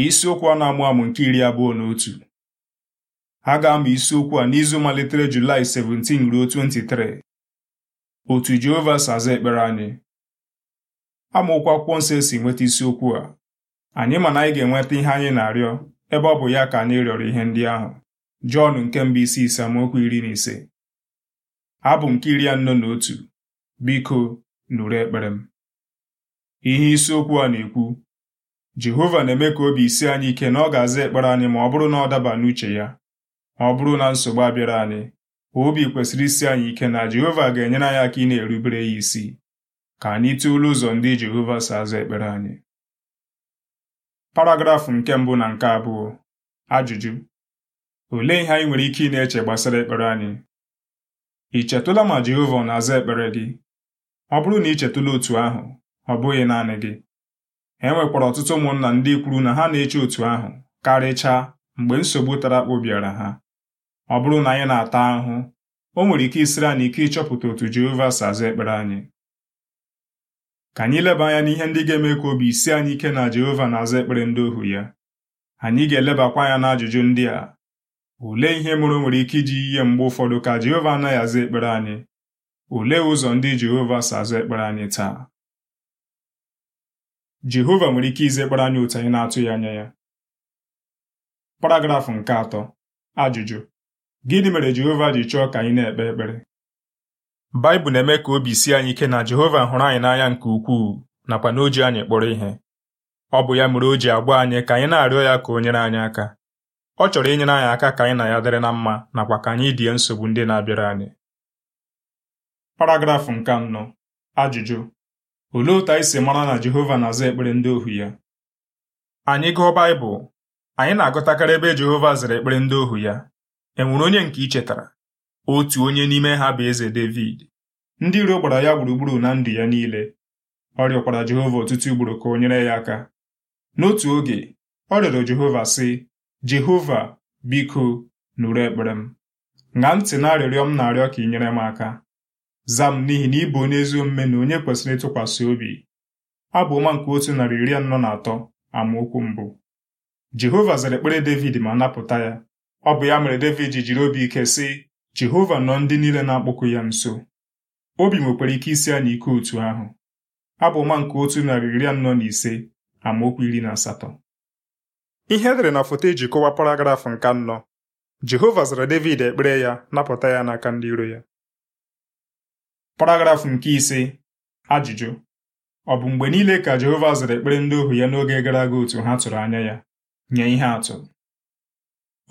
isiokwu a na-amụ amụ nke iri abụọ na otu ha ga-amụ isiokwu a n'izu malitere Julaị 17 ruo 23 otu Jehova si aza ekpere anyị amaokwu akwụkwọ nsọ esi nweta isiokwu a anyị ma na anyị ga-enweta ihe anyị na-arịọ ebe ọ bụ ya ka anyị rịọrọ ihe ndị ahụ Jọn nke mbụ isi ise amaokwu iri na ise abụ nke iri anọ na otu biko nụrụ ekpere m ihe isiokwu a na-ekwu Jehova na-eme ka obi isi anyị ike na ọ ga-aza ekpere anyị ma ọ bụrụ na ọ daba n'uche ya ma ọ bụrụ na nsogbu abịara anyị obi kwesịrị isi anyị ike na Jehova ga-enyere anyị aka ị na-erubere ya isi ka anyị tụọla ụzọ ndị Jehova si aza ekpere anyị paragrafụ nke mbụ na nke abụọ ajụjụ olee ihe anyị nwere ike ị na-eche gbasara ekpere anyị ị chetụla ma Jehova na-aza ekpere gị ọ bụrụ na ị chetụla otu ahụ ọ bụghị naanị gị e nwekwara ọtụtụ ụmụnna ndị kwuru na ha na-eche otu ahụ karịchaa mgbe nsogbu tara akpụ bịara ha ọ bụrụ na anyị na-ata ahụhụ o nwere ike isiri anyị ike ịchọpụta otu Jehova si aza ekpere anyị ka anyị leba anya n'ihe ndị ga-eme ka obi isi anyị ike na Jehova na-aza ekpere ndị ohu ya anyị ga-elebakwa anya n'ajụjụ ndị a olee ihe mụrụ o nwere ike iji ihe mgbe ụfọdụ ka Jehova anaghị aza ekpere anyị olee ụzọ ndị Jehova si aza ekpere anyị taa Jehova nwere ike ize izekpara anyị otu anyị na-atụghị anya ya paragrafụ nke atọ ajụjụ gịnị mere Jehova ji chọọ ka anyị na-ekpe ekpere Baịbụl na-eme ka obi si anyị ike na Jehova hụrụ anyị n'anya nke ukwuu nakwa na oji anyị kpọrọ ihe ọ bụ ya mere o ji agba anyị ka anyị na-arịọ ya ka o nyere anyị aka ọ chọrọ inyere anyị aka ka anyị na ya dịrị na mma nakwa ka anyị die nsogbu ndị na-abịara anyị paragrafụ nke anọ ajụjụ olee otu anyị si mara na Jehova na-aza ekpere ndị ohu ya anyị gụọ Baịbụl anyị na-agụtakarị ebe Jehova zara ekpere ndị ohu ya e nwere onye nke i chetara otu onye n'ime ha bụ eze Devid ndị iro gbara ya gburugburu na ndụ ya niile ọ rịọkwara Jehova ọtụtụ ugboro ka o nyere ya aka n'otu oge ọ rịọrọ Jehova sị Jehova biko nụrụ ekpere m ṅaa ntị na arịrịọ m na-arịọ ka ị nyere m aka Zam n'ihi na ị bụ onye ezi omume na onye kwesịrị ịtụkwasị obi. Abụ ọma nke otu narị iri anọ na atọ amaokwu mbụ Jehova zara ekpere Devid ma napụta ya ọ bụ ya mere Devid jiri obi ike sị Jehova nọ ndị niile na-akpọku ya nso obi nwekwara ike isi anyị ike otu ahụ abụ ọma nke otu narị iri anọ na ise amaokwu iri na asatọ ihe edere na foto eji kọwaa paragrafụ nke anọ Jehova zara Devid ekpere ya napụta ya n'aka ndị iro ya paragrafụ nke ise ajụjụ ọ bụ mgbe niile ka Jehova zara ekpere ndị ohu ya n'oge gara aga otu ha tụrụ anya ya nye ihe atụ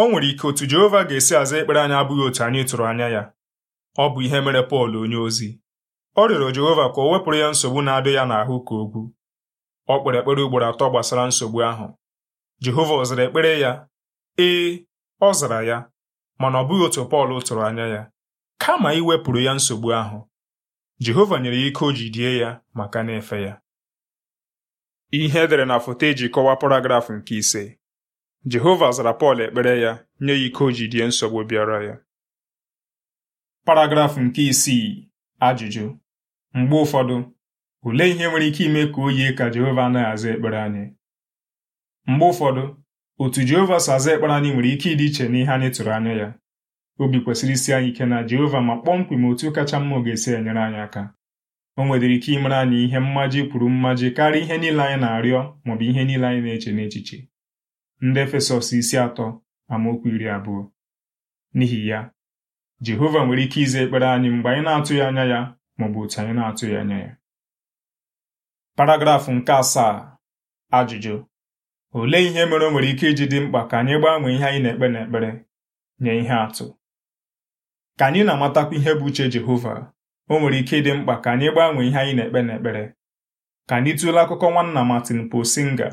o nwere ike otu Jehova ga-esi aza ekpere anyị abụghị otu anyị tụrụ anya ya ọ bụ ihe mere Pọl onye ozi ọ rịọrọ Jehova ka o wepụrụ ya nsogbu na adị ya n'ahụ ka ogwu ọ kpere ekpere ugboro atọ gbasara nsogbu ahụ Jehova ọ zara ekpere ya ee ọ zara ya mana ọ bụghị otu Pọl tụrụ anya ya kama iwepụrụ ya nsogbu ahụ Jehova nyere ya ike o die ya maka na-efe ya ihe edere na foto eji kọwaa paragraf nke ise Jehova zara Pọl ekpere ya nye ya ike o die nsogbu bịara ya paragrafụ nke isii ajụjụ mgbe ụfọdụ ole ihe nwere ike ime ka o yie ka Jehova anaghị aza ekpere anyị mgbe ụfọdụ otu Jehova si aza ekpere anyị nwere ike ịdị iche n'ihe anyị tụrụ anya ya obi kwesịrị isi anyị ike na Jehova ma kpọmkwem otu kacha mma ọ ga-esi enyere anyị aka o nwedịrị ike imere anyị ihe mmaji kwuru mmaji karịa ihe niile anyị na-arịọ maọbụ ihe niile anyị na-eche n'echiche ndị Efesọs isi atọ amaokwu iri abụọ n'ihi ya Jehova nwere ike ize ekpere anyị mgbe anyị na-atụghị anya ya maọbụ otu anyị na-atụghị anya ya paragrafụ nke asaa ajụjụ olee ihe mere o nwere ike iji dị mkpa ka anyị gbanwee ihe anyị na-ekpe n'ekpere nye ihe atụ ka anyị na-amatakwa ihe bụ uche Jehova o nwere ike ịdị mkpa ka anyị gbanwee ihe anyị na-ekpe n'ekpere ka anyị tụlee akụkọ nwanna Martin Posinga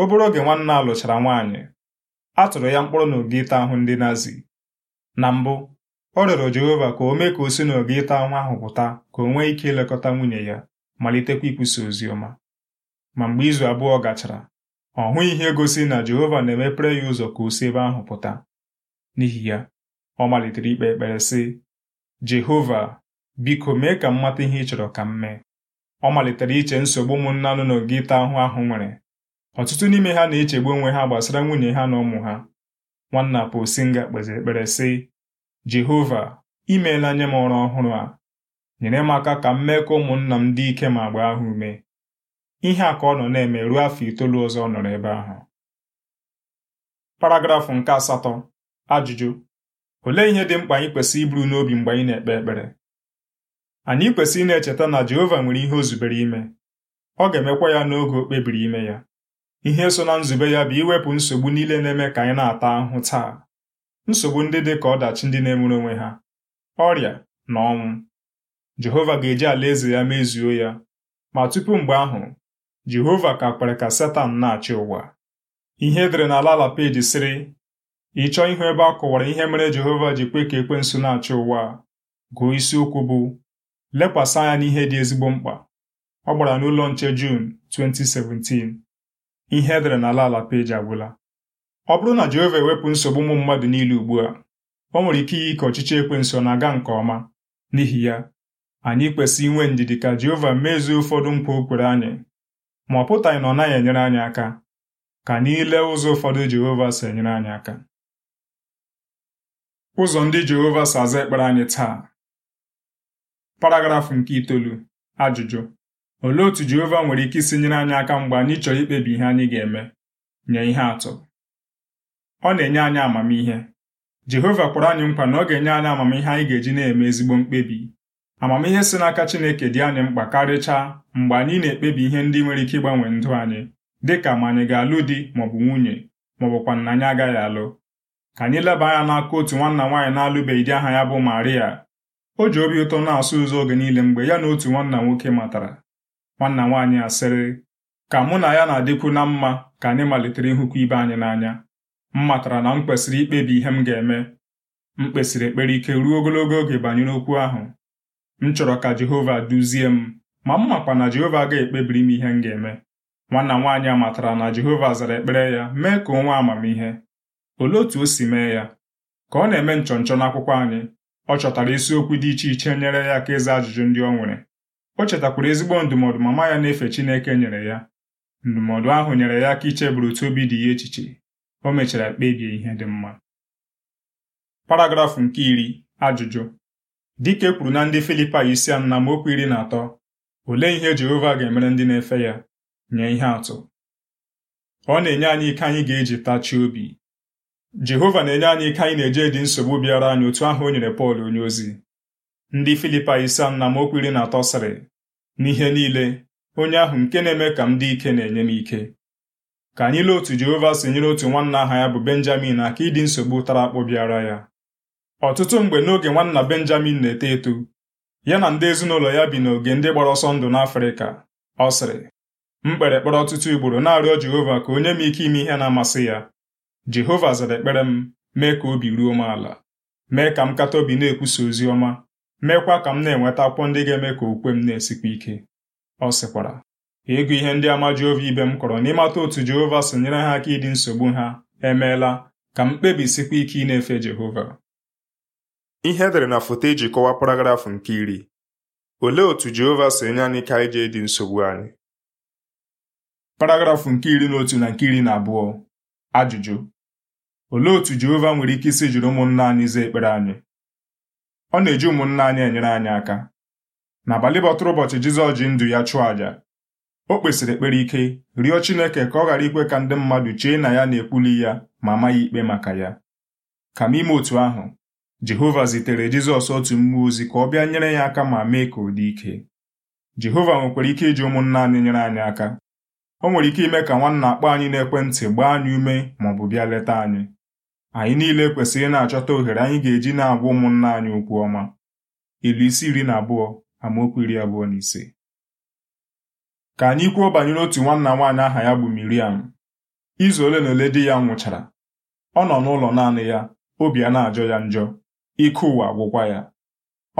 obere oge nwanna alụchara lụchara nwaanyị a tụrụ ya na n'oge ịta ahụ ndị Nazi na mbụ ọ rịọrọ Jehova ka o mee ka o si n'oge ịta ahụ ahụ pụta ka o nwee ike ilekọta nwunye ya malitekwa ikwusa ozi ọma ma mgbe izu abụọ gachara ọ hụghị ihe gosi na Jehova na-emepere ya ụzọ ka o si ebe ahụ pụta n'ihi ya ọ malitere ikpe ekpere sị Jehova biko mee ka m mata ihe ị chọrọ ka m mee ọ malitere iche nsogbu ụmụnna nọ n'oge ịta ahụ ahụ nwere ọtụtụ n'ime ha na-echegbu onwe ha gbasara nwunye ha na ụmụ ha nwanna Posinga kpeziri ekpere sị Jehova imeela nye m ọrụ ọhụrụ a nyere m aka ka m mee ka ụmụnna m dị ike ma gbaa ha ume ihe a ka ọ nọ na-eme ruo afọ itoolu ọzọ ọ nọrọ ebe ahụ paragrafụ nke asatọ ajụjụ Olee ihe dị mkpa anyị kwesịrị iburu n'obi mgbe anyị na-ekpe ekpere anyị kwesịrị na-echeta na Jehova nwere ihe o zubere ime ọ ga-emekwa ya n'oge o kpebiri ime ya ihe so na nzube ya bụ iwepụ nsogbu niile na-eme ka anyị na-ata ahụhụ taa nsogbu ndị dị ka ọdachi ndị na emere onwe ha ọrịa na ọnwụ Jehova ga-eji alaeze ya mezuo ya ma tupu mgbe ahụ Jehova ka kwere ka Setan na-achị ụwa ihe edere n'ala ala peji sịrị ị chọọ ịhụ ebe a kọwara ihe mere Jehova ji kwe ka ekwensu na-achị ụwa a gụọ isiokwu bụ lekwasị anya n'ihe dị ezigbo mkpa ọ gbara n'ụlọ nche Jun 2017 ihe edere n'ala ala peji agwụla ọ bụrụ na Jehova ewepụ nsogbu ụmụ mmadụ niile ugbu a ọ nwere ike iyi ka ọchịchị ekwensu na-aga nke ọma n'ihi ya anyị kwesị inwe ndidi ka Jehova mezuo ụfọdụ nkwa o kwere anyị ma ọ pụtaghị na ọ naghị enyere anyị aka ka anyị ụzọ ụfọdụ Jehova si enyere anyị aka ụzọ ndị Jehova si aza ekpere anyị taa paragrafụ nke itoolu ajụjụ olee otu Jehova nwere ike isi nyere anyị aka mgbe anyị chọrọ ikpebi ihe anyị ga-eme nye ihe atụ ọ na-enye anyị amamihe Jehova kwara anyị nkwa na ọ ga-enye anyị amamihe anyị ga-eji na-eme ezigbo mkpebi amamihe si n'aka Chineke dị anyị mkpa karịchaa mgbe anyị na-ekpebi ihe ndị nwere ike ịgbanwe ndụ anyị dịka ma anyị ga-alụ di maọbụ nwunye maọbụkwa na anyị agaghị alụ ka anyị leba anya n'aka otu nwanna nwaanyị na-alụbeghị di aha ya bụ Maria o ji obi ụtọ na-asụ ụzọ oge niile mgbe ya na otu nwanna nwoke matara nwanna nwaanyị asịrị ka mụ na ya na-adịkwu na mma ka anyị malitere ịhụkwa ibe anyị n'anya m matara na m kwesịrị ikpebi ihe m ga-eme m kpesịrị ekpere ike ruo ogologo oge banyere okwu ahụ m chọrọ ka Jehova duzie m ma m makwa na Jehova ga-ekpebiri m ihe m ga-eme nwanna nwaanyị a matara na Jehova zara ekpere ya mee ka onwe amamihe Olee otu o si mee ya? Ka ọ na-eme nchọnchọ n'akwụkwọ anyị ọ chọtara isiokwu dị iche iche nyere ya aka ịza ajụjụ ndị ọ nwere o chetakwara ezigbo ndụmọdụ mama ya na-efe Chineke nyere ya ndụmọdụ ahụ nyere ya aka icheburu otu obi dị ya echiche o mechara kpebie ihe dị mma paragrafụ nke iri ajụjụ dike kwuru na ndị filipa isi anọ na mokwu iri na atọ olee ihe Jehova ga-emere ndị na-efe ya nye ihe atụ ọ na-enye anyị ike anyị ga-eji tachi obi jehova na-enye anyị ike anyị na-eje dị nsogbu bịara anyị otu ahụ o nyere pọl onyeozi ndị filipa isa na okwiri na atọ sịrị n'ihe niile onye ahụ nke na-eme ka m dị ike na-enye m ike ka anyị lee otu jehova si nyere otu nwanna aha ya bụ benjamin aka ịdị nsogbu tara akpụ bịara ya ọtụtụ mgbe n'oge nwanna benjamin na-eto eto ya na ndị ezinụlọ ya bi n'oge ndị gbara ọsọ ndụ n'afrịka ọ sịrị m kpere kpere ọtụtụ ugboro na-arịọ jehova ka onye m ike ime ihe na-amasị ya jehova zara ekpere m mee ka obi ruo m ala mee ka m kata obi na-ekwusa ozi ọma meekwa ka m na-enweta akwụkwọ ndị ga-eme ka okwe m na-esikwa ike ọ sịkwara ịgụ ihe ndị ama Jehova ibe m kọrọ n'ịmata otu Jehova si nyere ha aka ịdị nsogbu ha emeela ka m kpebisikwa ike ị na-efe Jehova ihe edere na foto e ji kọwaa paragrafụ nke iri olee otu Jehova si enye anyị ka anyị ji dị nsogbu anyị paragrafụ nke iri na otu na nke iri na abụọ Ajụjụ olee otu Jehova nwere ike isi jiri ụmụnna anyị zaa ekpere anyị ọ na-eji ụmụnna anyị enyere anyị aka n'abalị bọtụrụ ụbọchị Jizọs ji ndụ ya chụọ àjà o kpesịrị ekpere ike rịọ Chineke ka ọ ghara ikwe ka ndị mmadụ chee na ya na-ekwuli ya ma amaghị ikpe maka ya kama ime otu ahụ Jehova zitere Jizọs otu mmụọ ozi ka ọ bịa nyere ya aka ma mee ka ọ dị ike Jehova nwekwara ike iji ụmụnna anyị nyere anyị aka o nwere ike ime ka nwanna akpọ anyị n'ekwentị gbaa anyị ume maọbụ bịa leta anyị anyị niile kwesịrị na-achọta ohere anyị ga-eji na-agwa ụmụnna anyị okwu ọma ilu isi iri na abụọ amaokwu iri abụọ na ise ka anyị kwuo banyere otu nwanna nwaanyị aha ya bụ Miriam izu ole na ole di ya nwụchara ọ nọ n'ụlọ naanị ya obi a na-ajọ ya njọ ike ụwa gwụkwa ya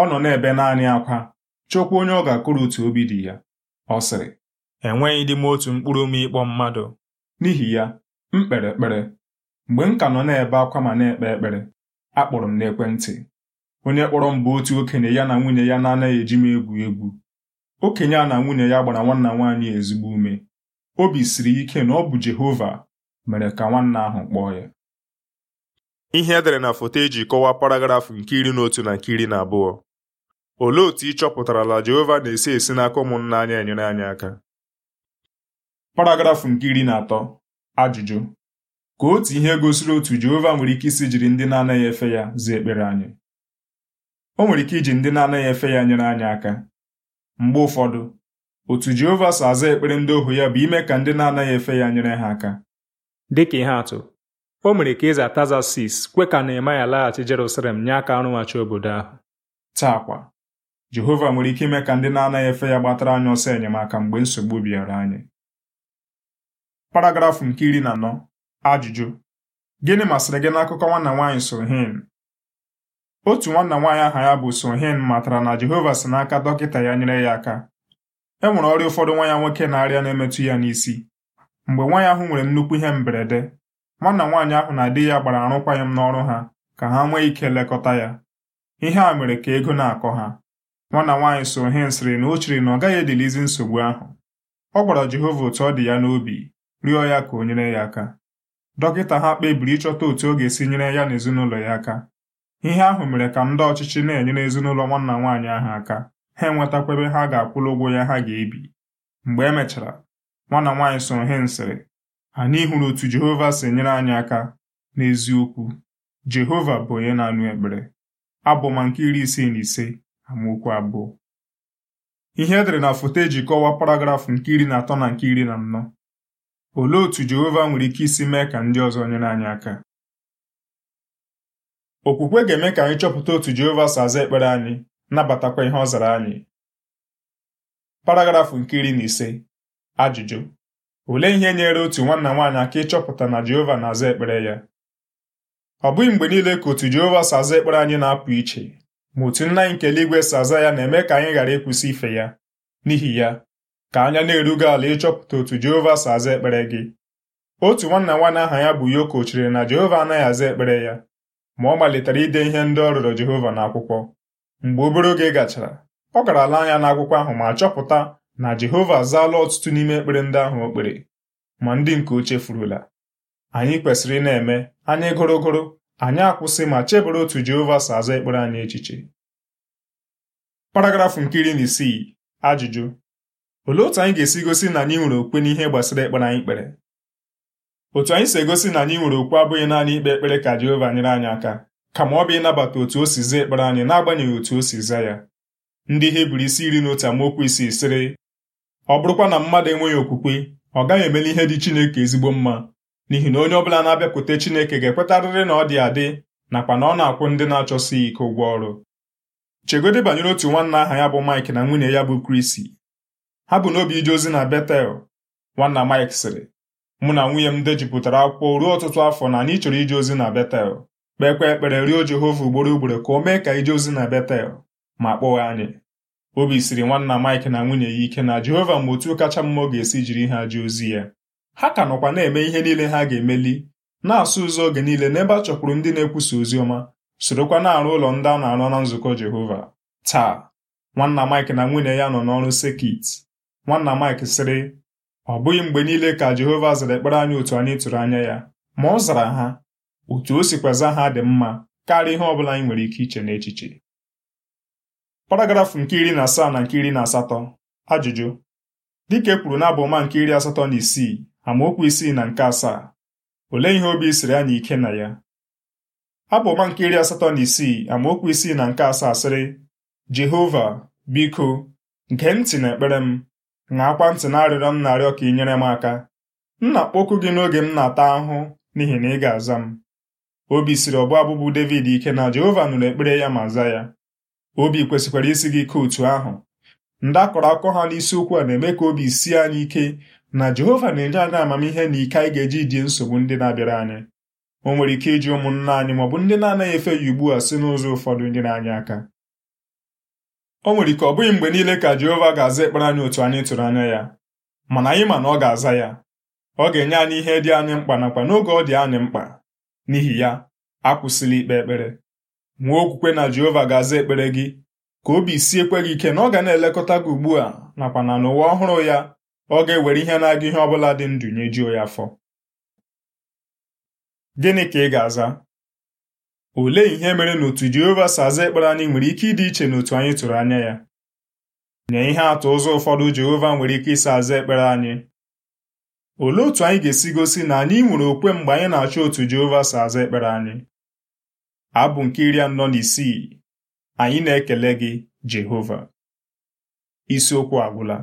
ọ nọ n'ebe naanị akwa chọkwa onye ọ ga-akụrụ otu obi dị ya ọ sịrị enweghịdị m otu mkpụrụ ome ịkpọ mmadụ n'ihi ya m kpere ekpere mgbe m ka nọ na-ebe akwa ma na-ekpe ekpere akpọrọ m n'ekwentị onye kpọrọ m bụ otu okenye ya na nwunye ya na-anaghị eji m egwu egwu okenye a na nwunye ya gbara nwanna nwaanyị ezigbo ume obi siri ike na ọ bụ Jehova mere ka nwanna ahụ kpọọ ya ihe edere na foto eji kọwaa paragraf nke iri na otu na nke iri na abụọ olee otu ị la Jehova na-esi esi n'aka ụmụnna anya enyere anyị aka paragrafụ nke iri na atọ ajụjụ ka otu ihe gosiri otu Jehova nwere ike isi jiri ndị na-anaghị efe ya zaa ekpere anyị o nwere ike iji ndị na-anaghị efe ya nyere anyị aka mgbe ụfọdụ otu Jehova so aza ekpere ndị ohu ya bụ ime ka ndị na-anaghị efe ya nyere ha aka Dị ka ihe atụ o mere ka eze Atazasis kwe ka Nehemaya laghachi Jerusalem nye aka arụghachi obodo ahụ taakwa Jehova nwere ike ime ka ndị na-anaghị efe ya gbatara anyị ọsọ enyemaka mgbe nsogbu bịara anyị paragrafụ nke iri na anọ ajụjụ gịnị masịrị gị n'akụkọ nwanna nwaanyị Sohin otu nwanna nwaanyị aha ya bụ Sohin matara na Jehova si n'aka dọkịta ya nyere ya aka e nwere ọrịa ụfọdụ nwa ya nwoke na-arịa na-emetụ ya n'isi mgbe nwa ya ahụ nwere nnukwu ihe mberede nwanna nwaanyị ahụ na di ya gbara arụkwaghịm n'ọrụ ha ka ha nwee ike lekọta ya ihe a mere ka ego na-akọ ha nwanna nwaanyị Sohin sịrị na o chere na ọ gaghị edilizi nsogbu ahụ ọ gwara Jehova otu ọ dị ya n'obi rịọ ya ka o nyere ya aka dọkịta ha kpebiri ịchọta otu ọ ga-esi nyere ya na ezinụlọ ya aka ihe ahụ mere ka ndị ọchịchị na-enyere ezinụlọ nwanna nwaanyị ahụ aka ha enwetakwa ebe ha ga-akwụrụ ụgwọ ya ha ga-ebi mgbe e mechara nwanna nwaanyị soro he nsịrị anyị hụrụ otu Jehova si nyere anyị aka n'eziokwu Jehova bụ onye na-anụ ekpere abụma nke iri isii na ise amaokwu abụọ ihe edere na foto eji kọwaa paragrafụ nke iri na atọ na nke iri na anọ Olee otú Jehova nwere ike isi mee ka ndị ọzọ nyere anyị aka? Okwukwe ga-eme ka anyị chọpụta otu Jehova si aza ekpere anyị nabatakwa ihe ọ zara anyị. Paragrafụ nke iri na ise ajụjụ olee ihe nyere otu nwanna nwaanyị aka ịchọpụta na Jehova na-aza ekpere ya ọ bụghị mgbe niile ka otu Jehova si aza ekpere anyị na-apụ iche ma otu nna anyị nke eluigwe si aza ya na-eme ka anyị ghara ịkwụsị ife ya n'ihi ya ka anya na-erugo ala ịchọpụta otu Jehova si aza ekpere gị otu nwanna nwanne aha ya bụ Yoko chere na Jehova anaghị aza ekpere ya ma ọ malitere ide ihe ndị ọ rụrụ Jehova n'akwụkwọ mgbe obere oge gachara ọ gara ala anya n'akwụkwọ ahụ ma chọpụta na Jehova azaala ọtụtụ n'ime ekpere ndị ahụ o kpere ma ndị nke oche furula. anyị kwesịrị ị na-eme anyị gụrụgụrụ anyị akwụsị ma chebere otu Jehova si aza ekpere anyị echiche paragrafụ nke iri na isii ajụjụ Olee otu anyị ga-esi gosi na anyị nwere okwe n'ihe gbasara ekpere anyị kpere otu anyị si egosi na anyị nwere okwe abụghị naanị ikpe ekpere ka Jehova nyere anyị aka kama ọ bụ ịnabata otu o si zaa ekpere anyị n'agbanyeghị otu o si zaa ya ndị ihe buru isi iri na otu amaokwu isii sịrị ọ bụrụkwa na mmadụ enweghị okwukwe ọ gaghị emeli ihe dị Chineke ezigbo mma n'ihi na onye ọbụla na-abịakwute Chineke ga-ekwetarịrị na ọ dị adị nakwa na ọ na-akwụ ndị na-achọsighị ike ụgwọ ọrụ chegodị banyere otu nwanna aha ya bụ Mike na nwunye ya bụ Krisi ha bụ n'obi ije ozi na Betel nwanna Mike sịrị mụ na nwunye m dejupụtara akwụkwọ ruo ọtụtụ afọ na anyị chọrọ ije ozi na Betel kpekwa ekpere rịọ Jehova ugboro ugboro ka o mee ka ije ozi na Betel ma kpọghị anyị obi siri nwanna Mike na nwunye ya ike na Jehova mgbe otu kacha mma ọ ga-esi jiri ha je ozi ya ha ka nọkwa na-eme ihe niile ha ga-emeli na-asụ ụzọ oge niile n'ebe a chọkwuru ndị na-ekwusa ozi ọma sorokwa na-arụ ụlọ ndị a na-arụ na nzukọ Jehova taa nwanna Mike na nwunye ya nọ n'ọrụ sekit Nwanna Mike sịrị ọ bụghị mgbe niile ka Jehova zara ekpere anyị otu anyị tụrụ anya ya ma ọ zara ha otu o sikwaza ha dị mma karịa ihe ọ bụla anyị nwere ike iche n'echiche paragrafụ nke iri na asaa na nke iri na asatọ ajụjụ dịka e kwuru n'abụma nke iri asatọ na isii amaokwu isii na nke asaa olee ihe obi siri anyị ike na ya abụma nke iri asatọ na isii amaokwu isii na nke asaa sịrị Jehova biko gee ntị na ekpere m na-akwa ntị na arịrịọ m na-arịọ ka ị nyere m aka nna kpọkụ gị n'oge m na-ata ahụhụ n'ihi na ị ga-aza m obi siri ọbụ abụbụ David ike na Jehova nụrụ ekpere ya ma za ya obi kwesịkwara isi gị ike otu ahụ ndị akọrọ akụkọ ha n'isiokwu a na-eme ka obi sie anyị ike na Jehova na-enye anyị amamihe na ike anyị ga-eji die nsogbu ndị na-abịara anyị o nwere ike iji ụmụnna anyị maọbụ ndị na-anaghị efe ya ugbu a si n'ụzọ ụfọdụ na anya aka o nwere ike ọ bụghị mgbe niile ka Jehova ga-aza ekpere anyị otu anyị tụrụ anya ya mana anyị ma na ọ ga-aza ya ọ ga-enye anyị ihe dị anyị mkpa nakwa n'oge ọ dị anyị mkpa n'ihi ya akwụsịla ikpe ekpere nwee okwukwe na Jehova ga-aza ekpere gị ka obi siekwe gị ike na ọ ga na-elekọta gị ugbu a nakwa na n'ụwa ọhụrụ ya ọ ga-ewere ihe na-aga ihe ọ bụla dị ndụ nyejuo ya afọ gịnị ka ị ga-aza Olee ihe mere na otu Jehova si aza ekpere anyị nwere ike ịdị iche n'otu anyị tụrụ anya ya? Nye ihe atụ ụzọ ụfọdụ Jehova nwere ike ịsa aza ekpere anyị. Olee otu anyị ga-esi gosi na anyị nwere okwe mgbe anyị na-achọ otu Jehova si aza ekpere anyị? Abụ nke iri anọ na Anyị na-ekele gị, Jehova. Isiokwu agwụla.